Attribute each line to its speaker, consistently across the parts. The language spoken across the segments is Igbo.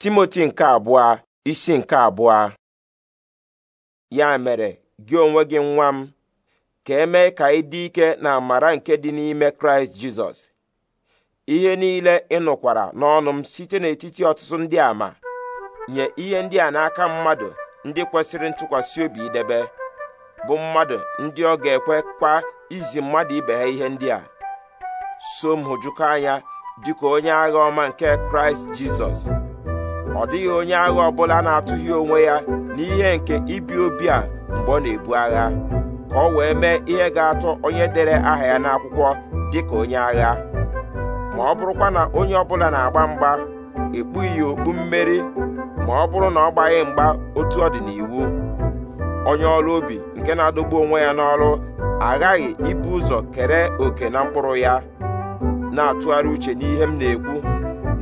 Speaker 1: timoti nke abụọ isi nke abụọ ya mere gị onwe gị nwa m ka emee ka ị dị ike na amara nke dị n'ime kraịst jizọs ihe niile ị nụkwara n'ọnụ m site n'etiti ọtụtụ ndị a ma nye ihe ndị a n'aka mmadụ ndị kwesịrị ntụkwasị obi idebe bụ mmadụ ndị ọ ga-ekwekwa izi mmadụ ibe ha ihe ndị a so m hụjụkọ anya dịka onye agha ọma nke kraịst jizọs ọ dịghị onye agha ọbụla na-atụghị onwe ya n'ihe nke ibi obi a mgbe ọ na-ebu agha ka ọ wee mee ihe ga-atọ onye dere aha ya n'akwụkwọ dị ka onye agha ma ọ bụrụkwa na onye ọbụla na-agba mgba ekpughị ya okpu mmeri ma ọ bụrụ na ọ gbaghị mgba otu ọ dị n'iwu onye ọrụ obi nke na-adọgbu onwe ya n'ọrụ aghaghị ibu ụzọ kere oke na mkpụrụ ya na-atụgharị uche n'ihe m na-ekwu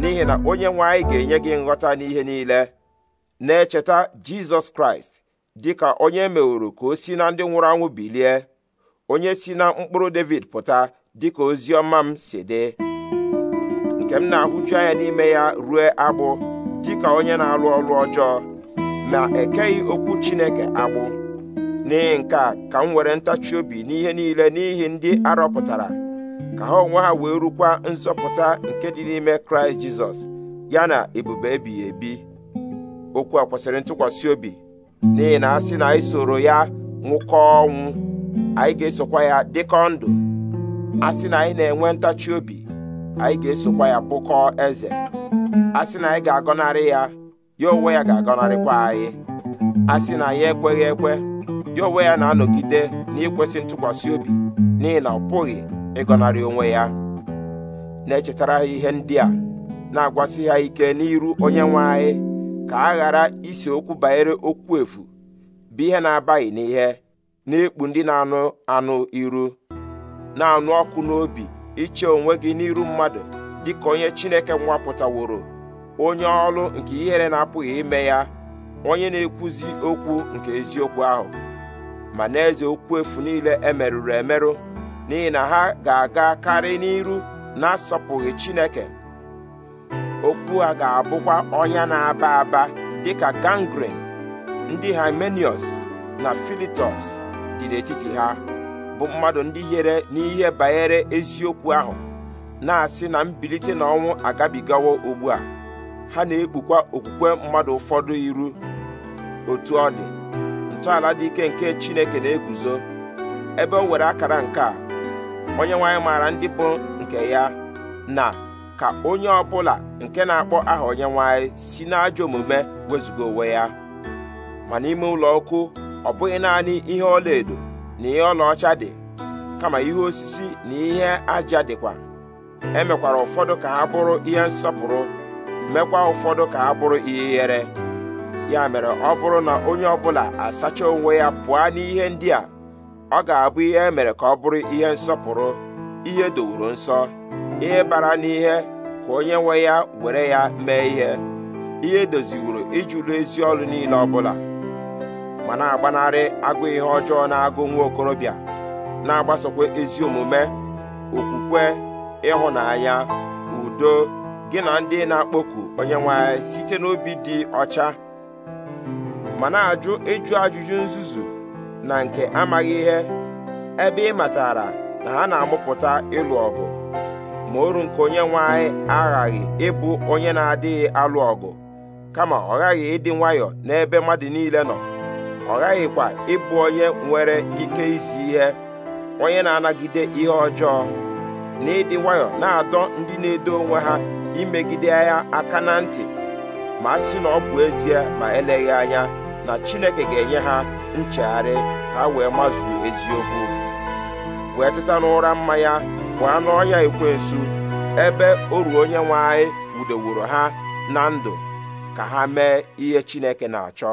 Speaker 1: n'ihi na onye nwe anyị ga-enye gị nghọta n'ihe niile na-echeta jizọs kraịst dịka onye e meworo ka o si na ndị nwụrụ anwụ bilie onye si na mkpụrụ david pụta dịka ka ozi m si dị nke m na-ahụju anya n'ime ya rue agbụ dịka onye na-alụ ọrụ ọjọọ ma ekeghị okwu chineke agbụ n'ihi nke a ka m were ntachi obi n'ihe niile n'ihi ndị arọpụtara ka ha onwe ha wee rukwa nzọpụta nke dị n'ime kraịst jizọs ya na ebube ebighị ebi okwu a kwesịrị ntụkwasị obi n'ihi na asị na anyị soro ya nwụkọ ọnwụ anyị ga-esokwa ya dịkọ ndụ a sị na anyị na-enwe ntachi obi anyị ga-esokwa ya bụkọọ eze a sị na anyị ga-agọnarị ya ya onwe ya ga-agọnarịkwa anyị a sị na anyị ekweghị ekwe ya onwe ya na-anọgide n'ikwesị ntụkwasị obi n'ihi na ọ pụghị ịgọnarị onwe ya na-echetara ha ihe ndị a na-agwasị ha ike n'iru onye nwe anyị ka a ghara isi okwu banyere okwu efu bụ ihe na-abaghị n'ihe na-ekpu ndị na-anụ anụ iru na-anụ ọkụ n'obi iche onwe gị n'iru mmadụ dịka onye Chineke nwapụtaworo onye ọlụ nke ihere na-apụghị ime ya onye na-ekwuzi okwu nke eziokwu ahụ ma na-eze okwu efu niile emerụrụ emerụ n'ihi na ha ga-aga karị n'iru na-asọpụghị Chineke okwu a ga-abụkwa ọnya na-aba aba dịka gangrene ndị Hymenius na Philetus dị n'etiti ha bụ mmadụ ndị yere n'ihe banyere eziokwu ahụ na-asị na mbilite n'ọnwụ agabigawo ugbu a ha na-ekpukwa okwukwe mmadụ ụfọdụ iru otu ọ dị ntọala dị ike nke Chineke na-eguzo ebe o were akara nke a onye nwanyị maara ndị bụ nke ya na ka onye ọbụla nke na-akpọ aha onye nwanyị si n'ajọ omume wezụga onwe ya ma n'ime ụlọ ọkụ ọ bụghị naanị ihe ọlaedo na ihe ọlaọcha dị kama ihe osisi na ihe aja dịkwa emekwara ụfọdụ ka ha bụrụ ihe nsọpụrụ mekwa ụfọdụ ka ha bụrụ ihe yere, ya mere ọ bụrụ na onye ọbụla asacha onwe ya pụọ n'ihe ndị a ọ ga-abụ ihe e mere ka ọ bụrụ ihe nsọpụrụ ihe dowuru nsọ ihe bara n'ihe ka onye nwe ya were ya mee ihe ihe doziwuru ijulu ezi ọrụ niile ọ bụla ma na-agbanarị agụ ihe ọjọọ na-agụ nwa okorobịa na-agbasokwa ezi omume okwukwe ịhụnanya udo gị na ndị na-akpọku onye nwe anyị site n'obi dị ọcha ma na-ajụ ịjụ ajụjụ nzuzu na nke amaghị ihe ebe ị matara na ha na-amụpụta ịlụ ọgụ ma oru nke onye nwanyị aghaghị ịbụ onye na-adịghị alụ ọgụ kama ọ ghaghị ịdị nwayọọ n'ebe mmadụ niile nọ ọ ghaghịkwa ịbụ onye nwere ike isi ihe onye na-anagide ihe ọjọọ na ịdị nwayọọ na-adọ ndị na-edo onwe ha imegide ya aka na ntị ma a sị na ọ bụ ezie ma eleghị anya na chineke ga-enye ha nchegharị ka ha wee mazuo eziokwu wee teta n'ụra mmanya pụọ ikwe ekwensu ebe oru onye nwe anyị wudeworo ha na ndụ ka ha mee ihe chineke na-achọ